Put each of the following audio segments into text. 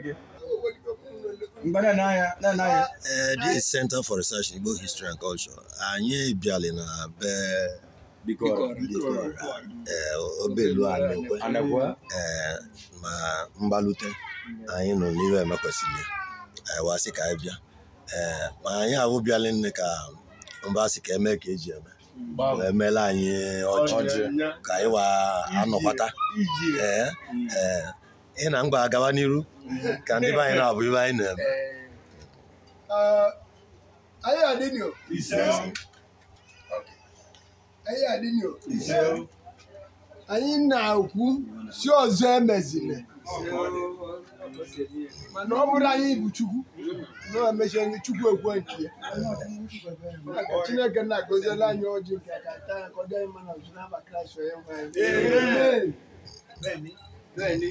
Okay. Uh, this is Center for Research in Igbo History and Culture. Anyị bịara na be eh, obelu anyị eh, ma mgbalute anyị nọ n'ihe emekwesịrị wasị ka anyị bịa ma anyị ahụ bịala nne ka mba sị ka eme ka eji eme emeela anyị ọjị ka anyị wa anọkwata ị na mgba agawa n'iru ka ndị be anyị na-abụ ibe anyị na-eme anyị adịnyo anyị adịnyo anyị na-ekwu si ọzọ emezile mana ọ bụrụ anyị bụ chukwu na-emecha ndị chukwu ekwe nke ya chineke na-agọziela anyị ọjị nke aka taa ka ọ dị mma na ọzọ n'aba kraịst onye nwe anyị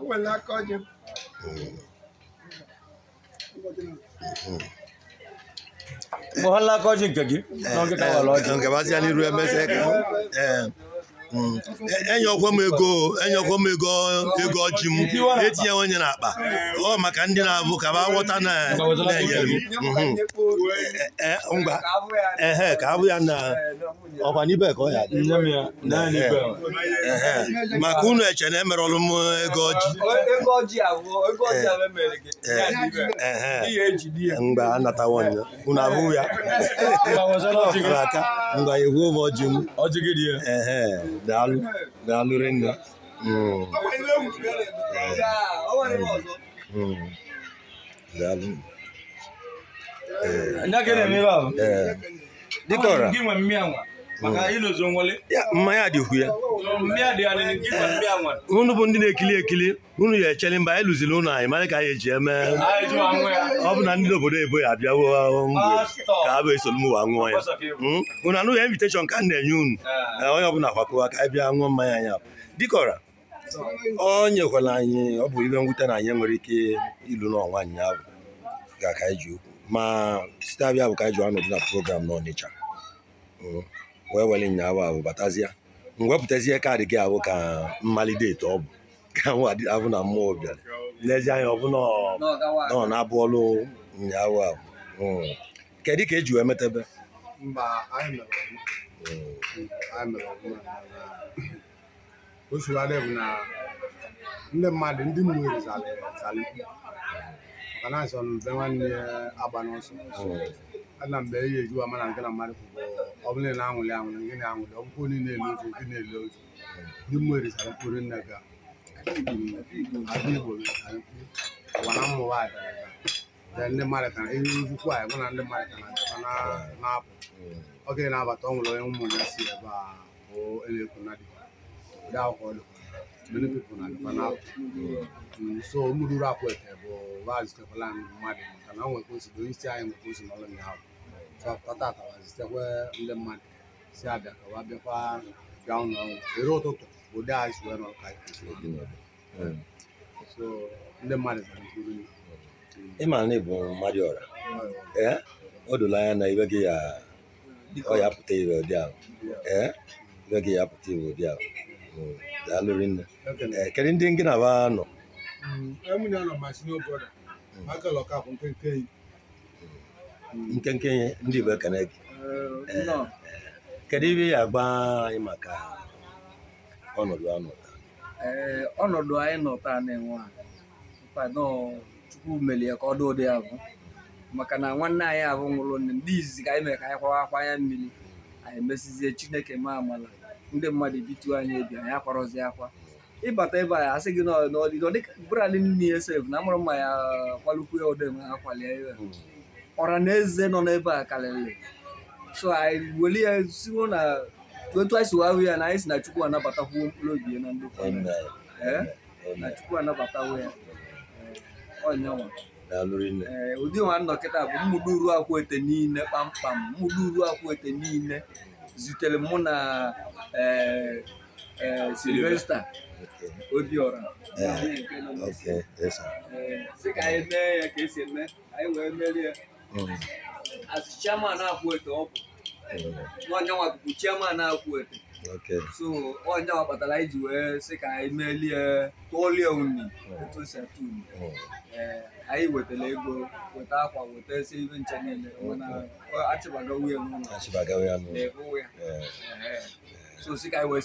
enwere aka ọjị mgbe ha laka ọjị nke gị ka eh, ọ Mm. E, enyekwa m ego enyekwa m ego ego ọjị m etinye onye n'akpa ọ maka ndị na-abụ ka ba ghọta na-enyere m mm-hmm. e, e, ngwa ehe ka abụ ya na ọkwa n'ibe ka ọ ya maka unu eche na emerọlụ m ego ọjị mgbe anatawo ya unu abụ ya ọkụrụ aka ngwa egwuo m ọjị m ya? daalụ daalụ rinne daalụ ee dịka Dikọrọ! maka mmanya dị ukwu ya eh, unu bụ ndị na-ekili ekili unu ya echele mba anyị lụziri ụnụ anyị mara ka anyị eji eme ọ bụ na ndị obodo ebo ya abịawo ka ha bụ esolu m wa ṅụọ ya hmm? unu anụghị inviteshọn ka a na-enye unu eh. Eh, onye ọbụla kwakọwa ka anyị bịa ṅụọ mmanya anyị ahụ dịkọra ọ nyekwala anyị ọ bụ ihe mwute na anyị nwere ike ilu n'ọnwa ụnyaahụ ga ka anyị ji okwu ma site abịa bụ ka anyị ji anọdụ na program n'Ọnịcha hmm? wee were ịnyawa ahụ batazie mwepụtazie kaadị gị ahụ ka mmalite ọ bụ ka ahụ na mmụọ bịara n'ezie anya ọ bụ nọ na-abụ ọrụ ahụ hmm. kedu ka eji wee metebe ndị mmadụ ndị mmiri asọ mbe nwanne agba ana mgbe ihe ejuwa mana nke na mmadụ kwụkwọ ọ bụla na anwụlị anwụlị gị na-anwụlị ọgwụkwọ niile elu otu gị na-ele otu ndị mmụọ erisara mkpụrụ nne ga adị igbo ụwa na mmụọ nwaanyị gara aga ndị mmadụ ka ihe ukwu anyị mana ndị mmadụ ka na na-apụ oge na-abata ọ nwere onye ụmụ ya si ebe a bụ elekwu na dịkwa ụdị akwụkwọ dịkwa many people na dịkwa na-apụ so mụrụrụ akwụ ete bụ vaazụ tekwala mmadụ maka na o nwekwa osi onye isi anyị nwekwa osi n'ọlụ ụnyaahụ ሲተኮ እንደማን ሲያደርገ ዋቤኳ ያው ነው የሮቶቶ ወደ አይስ ወር ነው ካ እንደማለት ነው ịma na ịbụ mmadụ ọra o dola anya na ibe gị ya ọ ya pụta ire ụdị ahụ ee ibe gị ya pụta ire ụdị ahụ daalụrị nne kedu ndị gị na ba nọ nkenke ndị Igbo ekene gị kedu ibe ya agba anyị maka ọnọdụ anọ eh, ọnọdụ anyị nọ taa na-enwe Chukwu meli ya ka ọ dị ụdị ya maka na nwanne anyị ahụ nwụrụ nne ndị izizi ka anyị mere ka anyị kwawa akwa anya mmiri anyị mesizie Chineke ma amala ndị mmadụ bituo anyị ebi anyị akwarọzi akwa ịbata ebe a asị gị n'ọdịdọ dịka brand nne ya sef na amụrụ mma ya kwalukwu ya ụdị ma ha ya hmm. na-eze nọ n'ebe a karịrị so anyị weli ya siwo na otu anyị si wahụ ya na anyị si na chukwu anabatakwuo mkpụrụ obi ya na ndị eh? na chukwu anabatawo ya onyanwa eh, ee eh, ụdị nwa nnọkịta bụ mmụdụ uru akwụ ete niile kpamkpam Mmụdụ uru akwụ ete niile zutere mụ na Sylvester Obiora sị ka anyị mee ya ka esi eme anyị wee merie as chairman Akwete ọ bụ mm. n'ọnyanwa bụbu chairman Akwete so ọnyanwa kpatara iji ji wee sị ka anyị melie tụọlie uni mm. etu si atụ uni anyị wetara mm. ego weta akwa weta esi ibe nche mụ na ya so si ka anyị wee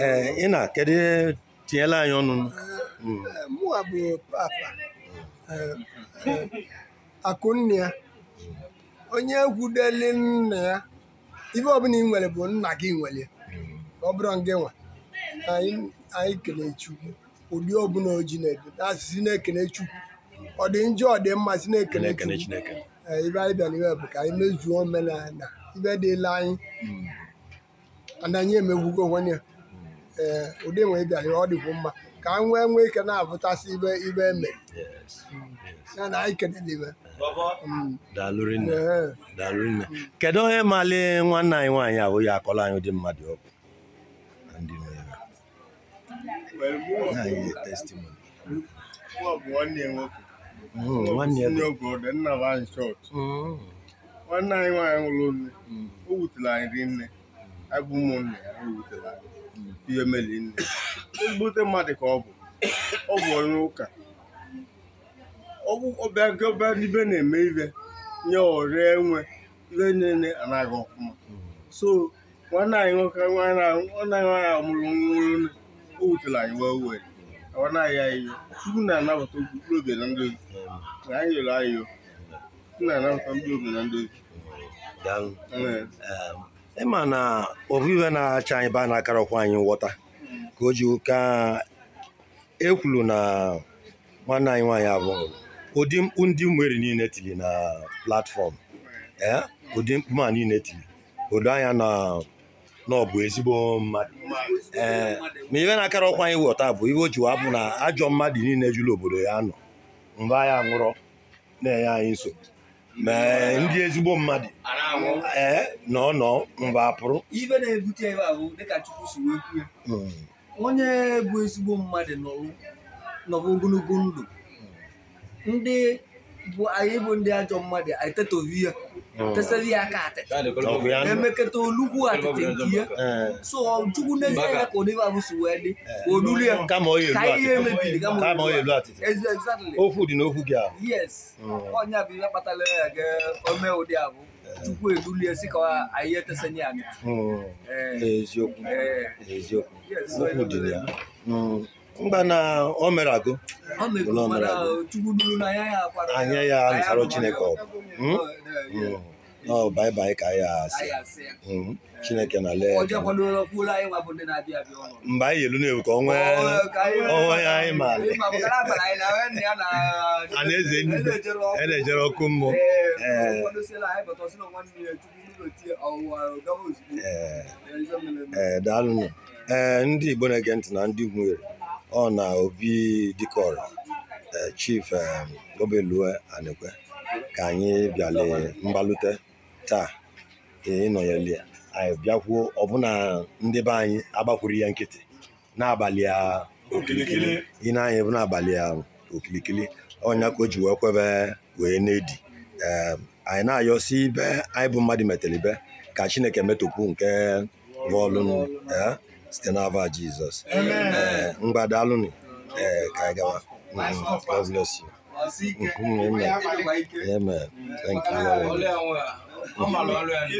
ee ị na tinyela Eh, mụa bụ papa eh, eh, akụnne ya onye egwudeli nna ya ife ọbụla ị nwere bụ nna gị nwere ọ bụrụ gị nwa anyị kelee ụdị ọbụla oji na-edu na-ekele chukwu ọ dị njọ ọ dị mma si na-ekele chukwu ibe anyị bịara iwe bụ ka anyị mezuo omenala ibe dịla anyị hmm. na anyị emegwugo onwe ya ee ụdị nwe bịara ọ dịkwu mma ka m nwee nwee ike na-abụtasị ibe ibe eme ya na anyị kene n'ibe mm. mm. kedu onye mali nwanne anyị nwaanyị abụ ya akọrọ anyị ụdị mmadụ ọkụ nwanne anyị nwaanyị nwụrụ nne mm. o wutere anyị rinne ya anyị Mgbute mmadụ ka ọ bụ ọ bụ onye ụka ọbịa nke ọbịa ibe na-eme ibe nye ọrịa enwe ihe niile anaghị ọfụma so nwanne anyị nwoke nwanne anyị amụrụ nwụrụ o wutere anyị wee wee awanaghị anyị chukwu na-anabata okpukpere oge na ndozi na anyị yọrọ anyị chukwu na-anabata ndị oge na ndị ndozi ịma na ofu iwe na-acha anyị baa n'akara akarọkwa anyị nghọta ka o ji ka e kwuru na nwanne anyị nwaanyị abụ ụdị mkpu ndị mmeri niile tiri na platfọm ee ụdị mkpu ma niile tiri odo anya na na ọ bụ ezigbo mmadụ ee ma ibe na-akara ọkwa anyị wọta bụ ibe o ji wapụ na ajọ mmadụ niile jụrụ obodo ya nọ mgbe anyị nwụrọ na-enye anyị nsogbu ma ndị ezigbo mmadụ ee nọ nọ mgbe apụrụ onye bụ ezigbo mmadụ nọrọ ogologo ndụ ndị bụ anyị bụ ndị ajọ mmadụ anyị ya hmm. tesara ya aka atị emeketa olugwu atịtị nke ya hmm. so jukwu n'ezie ya ka onye abụsi wee dị olulu ya hmm. ka ihe emebiri kama ọ elu dị gị yes ọnya bụ ihe kpatara ya ga abụ tupu edulie sị ka anyị etesanye anyị eziokwu eh. eziokwu okwu dị ya mgba hmm. na o mere agụ anya ya ya, nsara chineke ọ bụ ọ bai ka ya asị Chineke na lee mgbe anyị elu na-ewu ka onwe ya anyị ma a na na ọkụ mmụọ ee daalụnụ ee ndị Igbo na-ege ntị na ndị nwere ọ na Obi Dikọrọ eh, Chief eh, Obelue Anekwe ka anyị bịala mgbalute taa nọ ya anyị bịakwuo ọbụna ndị be anyị agbakwuru ya nkịtị n'abalị okirikiri ị na-anya bụ n'abalị okirikiri ọnya ka o ji wee kwebe wee na-edi anyị na-ayọsi ibe anyị bụ mmadụ metere ibe ka Chineke metụpụ nke bọọlụ e, site n'ava Jizọs mgbadalụnụ e, ee ka anyị gawa mm-hmm. God bless you. Mm-hmm. Amen. Thank you. Ó máa lọ